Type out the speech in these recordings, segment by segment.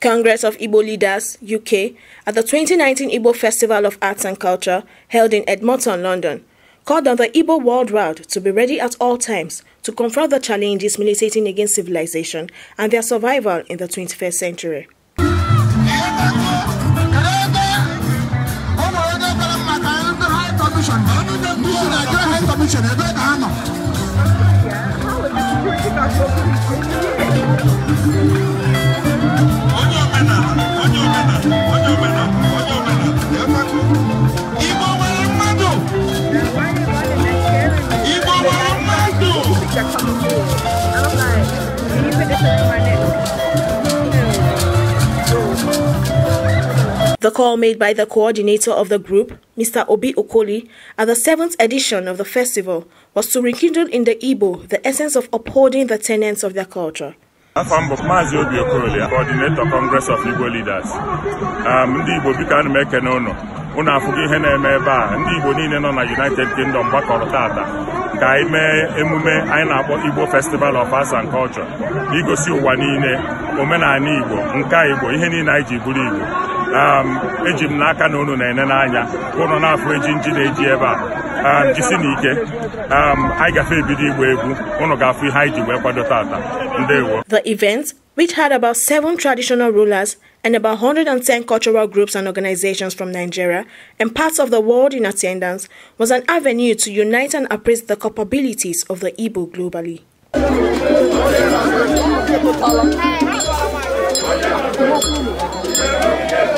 Congress of Igbo Leaders, UK, at the 2019 Igbo Festival of Arts and Culture held in Edmonton, London called on the Igbo World Round to be ready at all times to confront the challenges militating against civilization and their survival in the 21st century. The call made by the coordinator of the group, Mr. Obi Okoli, at the seventh edition of the festival was to rekindle in the Igbo the essence of upholding the tenets of their culture. I am bụ maazị obi Okoli, coordinator congress of igbo leaders um, ndị igbo biko ana m ekene ụnụ ụnụ afụgo ihe na-eme ebe a ndị igbo niile nọ na united kingdom gbakọrọ taata ka anyị mee emume anyị na-akpọ igbo festival of arts and culture igosi ụwa niile omenala igbo nka igbo ihe niile anyị ji bụrụ igbo um, eji m n'aka na unu na-ene n'anya ụnụ na-afụ eji nji na-eji ebe a um, jisi na ike um, anyị gafe ebido egwu ụnụ ga-afụ ihe anyị ji wee kwado tata ndewo The event, which had about seven traditional rulers and about 110 cultural groups and organizations from Nigeria and parts of the world in attendance, was an avenue to unite and appraise the capabilities of the Igbo globally.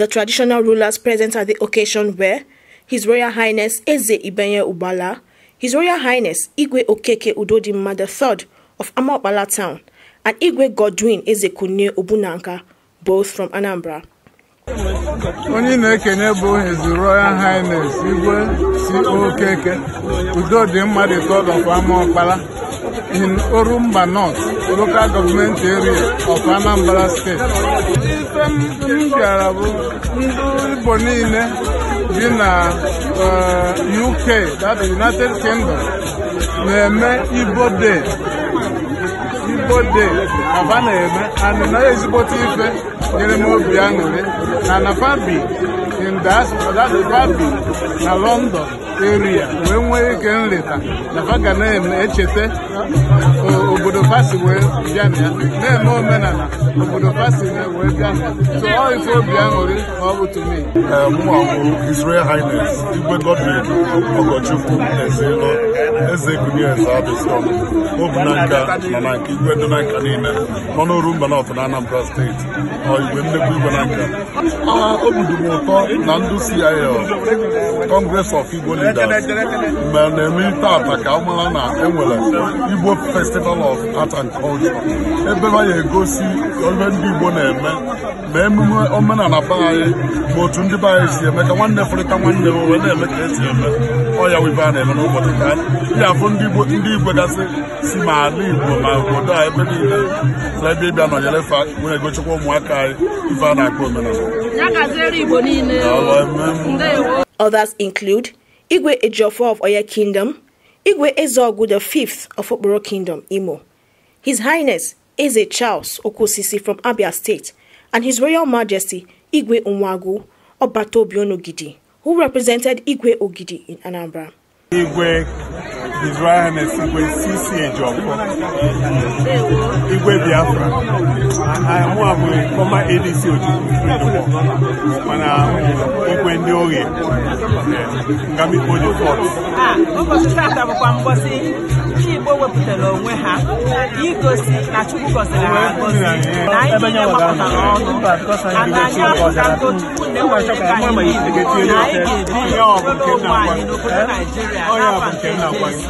The traditional rulers present at the occasion were His Royal Highness Eze Ibenye Ubala, His Royal Highness Igwe Okeke Udodimma III of Amaopala Town, and Igwe Godwin Ezekunle Obunanka, both from Anambra. onye na-ekenye bụ His Royal Highness Igwe si Okeke Udodimma III of Amaopala in Orumba North, local government area of Anambra State. Ife m bịara bụ ndị Igbo niile bi na eh, UK, that United Kingdom, na-eme Igbo Day. Igbo Day aba na-eme and na ezigbote ife nyere m obi aṅụrị na Nafabi in diaspora, that Nafabi na London. eru ya wee nwee ike nleta na faga na-echeta obodo Fasi wee bịa na ya na-eme omenala obodo Fasi wee bịa so ọ ife obi aṅụrị ma ọ bụ tumi mwa eh, bụ Israel Highness Igwe Godwin Ogochukwu Ezelo Eze Kunyeze Abiston obu na nka nọ na nke igwe dị na nka niile nọ n'oru mba na Anambra steeti ọ igwe nnekwu igwe na nka obi dị m ụtọ na ndụ CIL Congress of Igbo mgbe na-eme tata ka ọ na enwere Igbo Festival of Art and Culture ebe a na-egosi ole ndị Igbo na-eme ma emume omenala baanyị ma otu ndị be anyị si eme ka nwanne fụrịta nwanne m wee na-eme ka esi eme ọya wibe a na-eme n'ụbọchị ka ya bụ ndị Igbo gasị si ma ala Igbo ma obodo a ebe niile ebe ịbịa nọnyere fa wee egochikwa ụmụaka anyị ife a na-akpọ omenala Others include Igwe Ejiofor of Oya Kingdom, Igwe Ezeogu the Fifth of Okporo Kingdom, Imo. His Highness Eze Charles Okosisi from Abia State, and His Royal Majesty Igwe Unwagu Obatobionogidi, who represented Igwe Ogidi in Anambra. Igwe His Igwe Sisi Ejiofor Igwe Biafra mụa bụ ọma Ojukwu Igwe ndị ohi Ngamikpo the fort ndị Igbo wepụtara onwe ha igosi na Chukwu gọziri ha na na ka anyị na anyị ga-ebi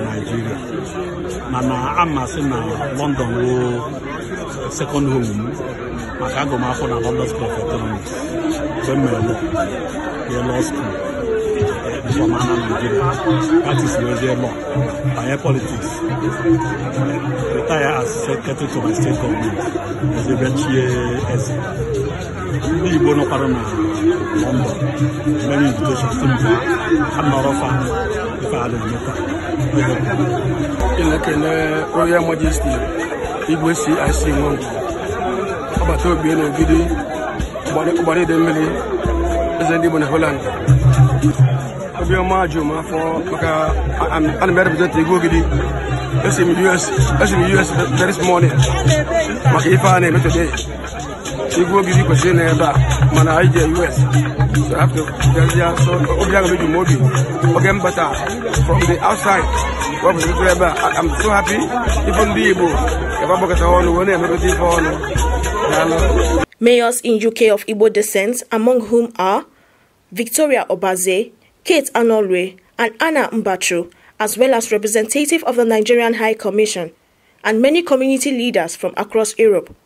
na Naịjirịa mana amasị na London woo second home m maka agụmakwụkwọ na London School of Economics mgbe m mere lọ law school from Anna Nigeria practice wezie law banye politics retire as secretary to my state government ezebechie eze ndị Igbo nọkwara na London mere invitation si mba ha nọrọ fa ife a na na-ekele Royal Majesty Igwe CIC Nwangu ọgbata obi na ogidi ụgbara ide mmiri eze ndị Igbo na Holland obiọma jụ m maka ana m represent Igwe Ogidi esi m US very small maka ife a na-eme from the outside I'm so happy ife be able. ebe agbakọta ọnụ wee Mayors in UK of Igbo descent, among whom are Victoria Obaze, Kate Anolwe, and Anna Mbachu, as well as representative of the Nigerian High Commission, and many community leaders from across Europe.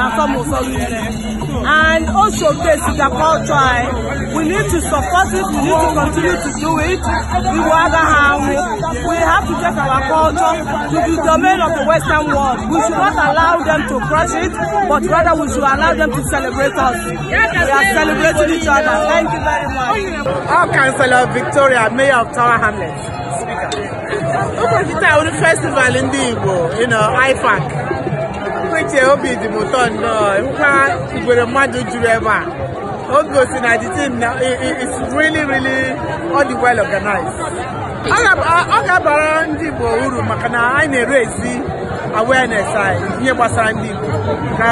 na some of us and also face the culture eh? we need to support it we need to continue to do it we will other hand we, um, we have to take our culture to the domain of the western world we should not allow them to crush it but rather we should allow them to celebrate us we are celebrating each other thank you very much. I'm Councillor Victoria, Mayor of Tower Hamlets. Ụbọchị taa onye festival ndị Igbo, you know, IFAC. n'ezie obi dị m ụtọ nnọọ hụkwa igwere mmadụ juru ebe a o gosi na the team na it's really really all the well organized ọ ga-abara ndị Igbo uru maka na anyị na-ere ezi awareness anyị ihe gbasara ndị Igbo ka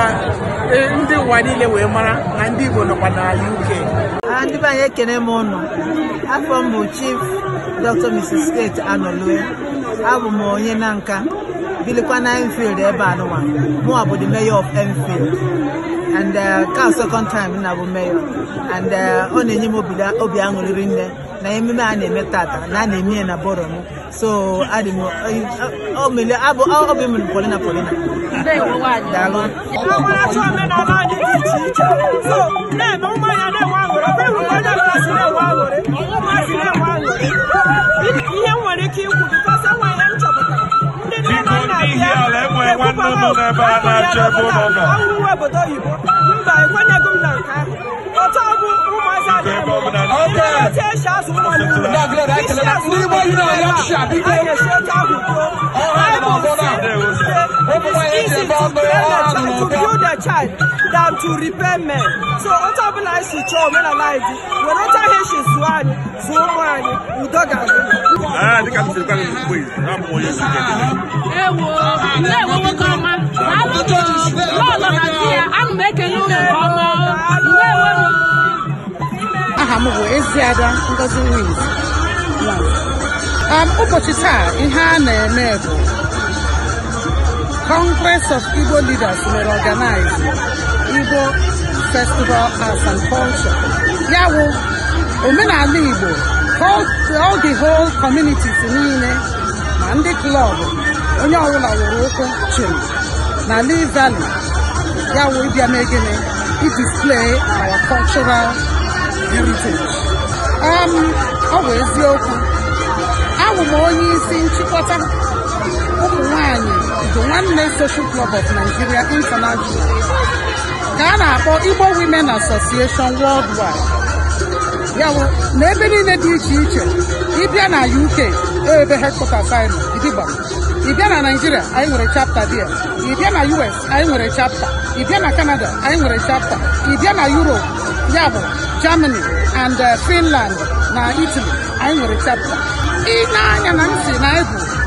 e, ndị ụwa niile wee mara na ndị Igbo nọkwa na UK ndị be anyị ekene m ụnụ afọ m bụ Chief Dr. Mrs. Kate Anolue abụ m onye na nka bilikwa na Enfield ebe eh, anụnwa mụwa bụ the mayor of Enfield and uh, ka second time nna bụ mayor and ọ uh, na-enye m obi aṅụrịrị nne na ememe a na-eme tata na a na-eme ya na bọrọ m so adị m obi m polina polina daalụ ihe nwere ike ikwu ala enwe nwanne nọ n'ebe a na-achọ ebe ụlọ nọ ekwenye gị na nke ahụ ọtọ bụ ụmụazị adịghị esi azụ ụmụ ndị Igbo yi na-anya chi a biko easy to parents to build their child than to repair men. So onye ọbụla anyị chọọ omenala anyị dị were ọcha ihe ha zụọ anyị zụọ ụmụ anyị udo ga-adị. Ewo ndewo nwoke ọma n'ụlọ na di ya ana m ekele unu nke ọma ndewo aha m bụ Eziada Ngozi Wins um, ụbọchị taa ihe a na-eme bụ Congress of Igbo leaders were organized Igbo Festival Arts and Culture. Ya bụ omenala Igbo all the whole communities niile ma ndị klọb onye ọbụla were ụkwụ chim na Lee Valley ya bụ ịbịa mee gịnị idisplay our cultural heritage. Um, ọ bụ eziokwu abụ m onye isi nchịkọta ụmụ nwanyị nwanne Social Club of Nigeria International ka a na-akpọ Igbo Women Association Worldwide ya na ebe niile dị iche iche ịbịa na UK e ebe headquarters anyị nọ Idigba ịbịa na Nigeria anyị nwere chapter bia ịbịa na US anyị nwere chapter ịbịa na Canada anyị nwere chapter ịbịa na Europe ya bụ Germany and eh, Finland na Italy anyị nwere chapter ị na-anya na ntị na egwu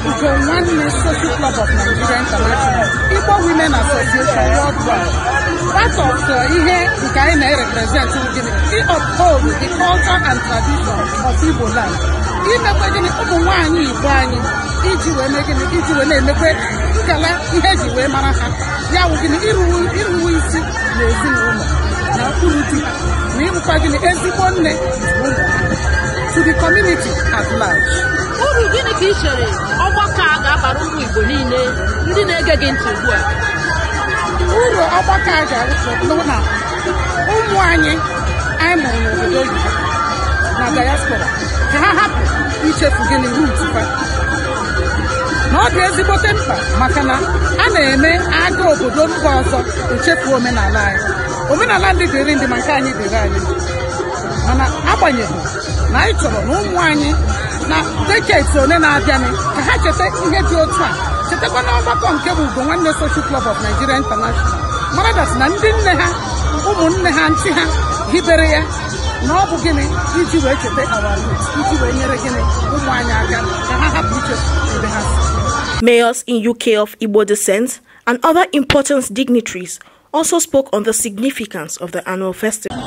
Ugo Nwanne Social Club of Nigeria International, Igbo Women Association Worldwide. Part of uh, ihe nke anyị na-erepresent gịnị uphold the culture and tradition of Igbo land. Imekwe gịnị ụmụ nwaanyị Igbo anyị iji wee mee gịnị iji wee na-emekwe ngala ihe ji wee mara ha ya wụ gịnị iruwe isi na ezinụlọ na ụkpụrụ di ha na ịbụkwa gịnị ezigbo nne na to the community at large. uru gịnị ka ị chere ọgbakọ a ga-abara ụmụ Igbo niile ndị na-ege gị ntị ugbu a uru ọgbakọ a ga-arụso bụ na ụmụ anyị anyị mụrụ n'obodo oyibo na diaspora ka ha hapụ ichefu gịnị rutupa na ọ dị ezigbote mkpa maka na a na-eme agha obodo mba ọzọ echefu omenala anyị omenala ndị dịrị ndị maka anyị dịrị anyị mana na chọrọ anyị na na ka ha ihe dị otu a na nke bụ nwanne Social Club of Nigeria International na ndị nne ha ha ntị ha hibere ya na ọ bụ gịnị iji wee awari iji wee nyere gịnị ụmụ anyị aka ka ha hapụ iche ha Mayors in UK of Igbo descent and other important dignitaries also spoke on the significance of the annual festival.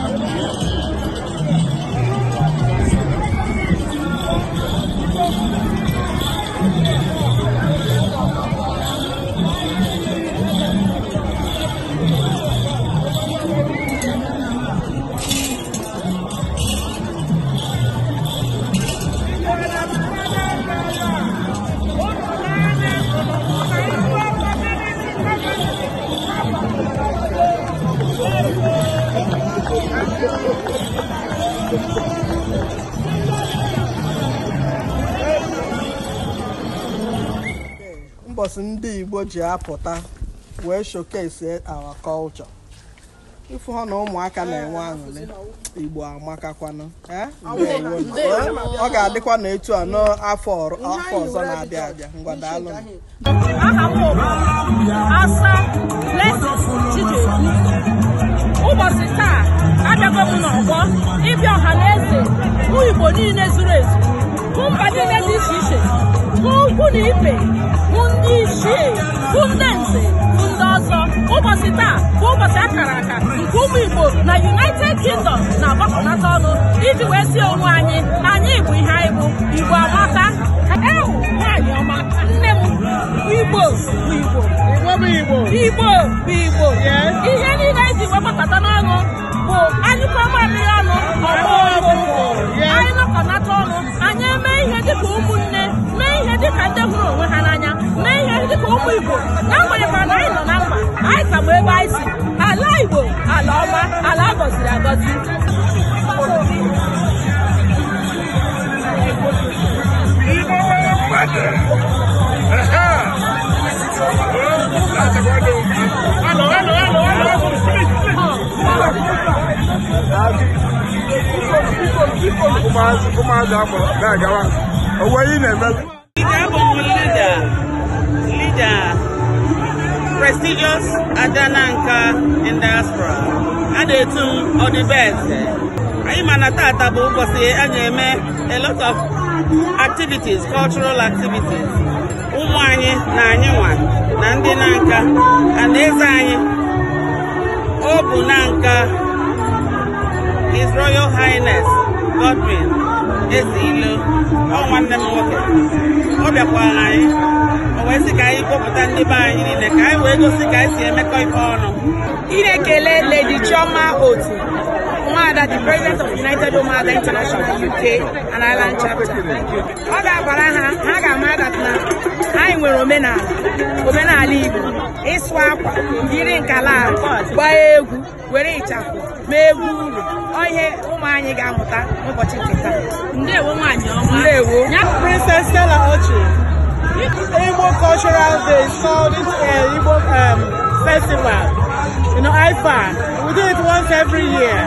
ụbọchị ndị igbo ji apụta wee showcase our culture ifu ha na ụmụaka na-enwe aṅụrị igbo amakakwanụ eh? ọ ga-adịkwa na etu a n'afọ ọzọ na-abịa abịa ngwa daalụ ụbọchị taa abịago n'ọgbọ ịbịa ọha na eze igbo niile zuru ezu mba niile dị iche iche bụ ukwu na ibe bụ ndị isi bụ ndị nze bụ ndị ọzọ ụbọchị taa bụ ụbọchị akara aka nke ụmụ igbo na united kingdom na-agbakọnata ọnụ iji wee si onwe anyị anyị bụ ihe anyị bụ igbo amata ewu nwaanyị ọma nne m igbo bụ igbo igbo bụ igbo ihe niile eji wee gbakọta n'ọnụ bụ anyị kwamamiri ọnụ ọgbọ igbo anyị nọkọnata ọnụ anyị eme ihe dịka ụmụnne ka ndị hụrụ onwe ha n'anya mee ihe dịka ụmụ igbo n'agbanyeghị na anyị nọ na mkpa anyị ka bụ ebe anyị si ala igbo ala ọma ala agọziri agọzi ụmụazị ụmụazị akpọrọ na-agawa onwe ihe na-eme Ida, prestigious Adananka in diaspora. A na-etu m Anyị ma na tata bụ ụbọchị a na-eme a lot of activities, cultural activities. Ụmụ anyị na anyị nwa na ndị na nka na eze anyị ọ bụ na nka His Royal Highness Godwin eze ilo ọ nwanne m nwoke ọ bịakwara anyị o wee sị ka anyị kpọpụta ndị be anyị niile ka anyị wee gosi ka anyị si emekọ ife ọnụ ịna-ekele Lady Chioma Otu Nwada the president of United Ụmụada International UK and Ireland chapter ọ ga-agbara ha ha ga-ama dat na anyị nwere omenala omenala Igbo ịsụ akwa yiri nkala gbaa egwu were ịchafụ mee egwu uru ihe ụmụ anyị ga-amụta n'ụbọchị nke taa ndewo nwaanyị ọma ndewo Princess Stella Ochi Igbo Cultural Day called it uh, Igbo um, Festival you know IFAN we do it once every year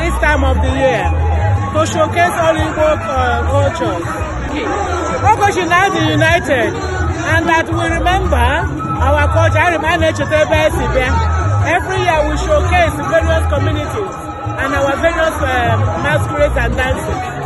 this time of the year to showcase all Igbo uh, cultures Ogochi now the united and that we remember our culture I ma na-echeta ebe esi bịa Every year we showcase various communities and our various um, masquerades and dances.